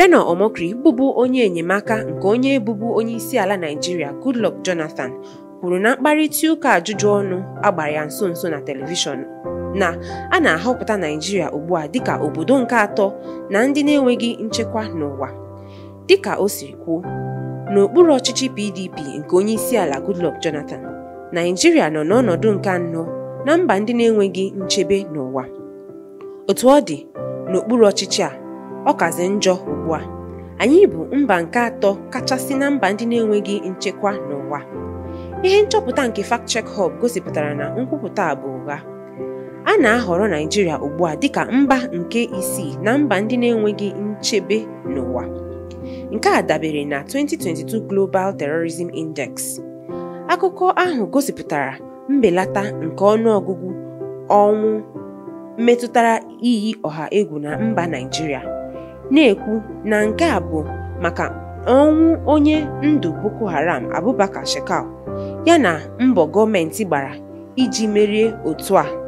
Reno Omokri bụbu onye enyemaka nke onye bụbu onye isi ala Naijiria Goodluck Jonathan kwuru na mkparịta ụka ajụjụ ọnụ agbara ya nso nso na telivishọn na a na-ahọpụta Naijiria ugbu a dịka obodo nke atọ na ndị na-enweghị nchekwa n'ụwa dịka o siri kwuo n'okpuru ọchịchị PDP nke onye isi ala Goodluck Jonathan Naijiria nọ n'ọnọdụ nke anọ na mba ndị na-enweghị nchebe n'ụwa otu ọ dị n'okpuru ọchịchị a ọ kazi njọ anyị bụ mba nke atọ kachasị na mba ndị na-enweghị nchekwa n'ụwa ihe nchọpụta nke FactChek Hub gosipụtara na nkwupụta a bụ ụgha a na-ahọrọ Naijiria ugbu a dịka mba nke isii na mba ndị na-enweghị nchebe n'ụwa nke a dabere na 2022 Global Terrorism Index akụkọ ahụ gosipụtara mbelata nke ọnụ ọgụgụ ọnwụ metụtara iyi ọha egwu na mba Naijiria na-ekwu na nke a bụ maka ọnwụ onye ndụ Boko Haram Abubakar Shekau na mbọ gọọmentị gbara iji merie otu a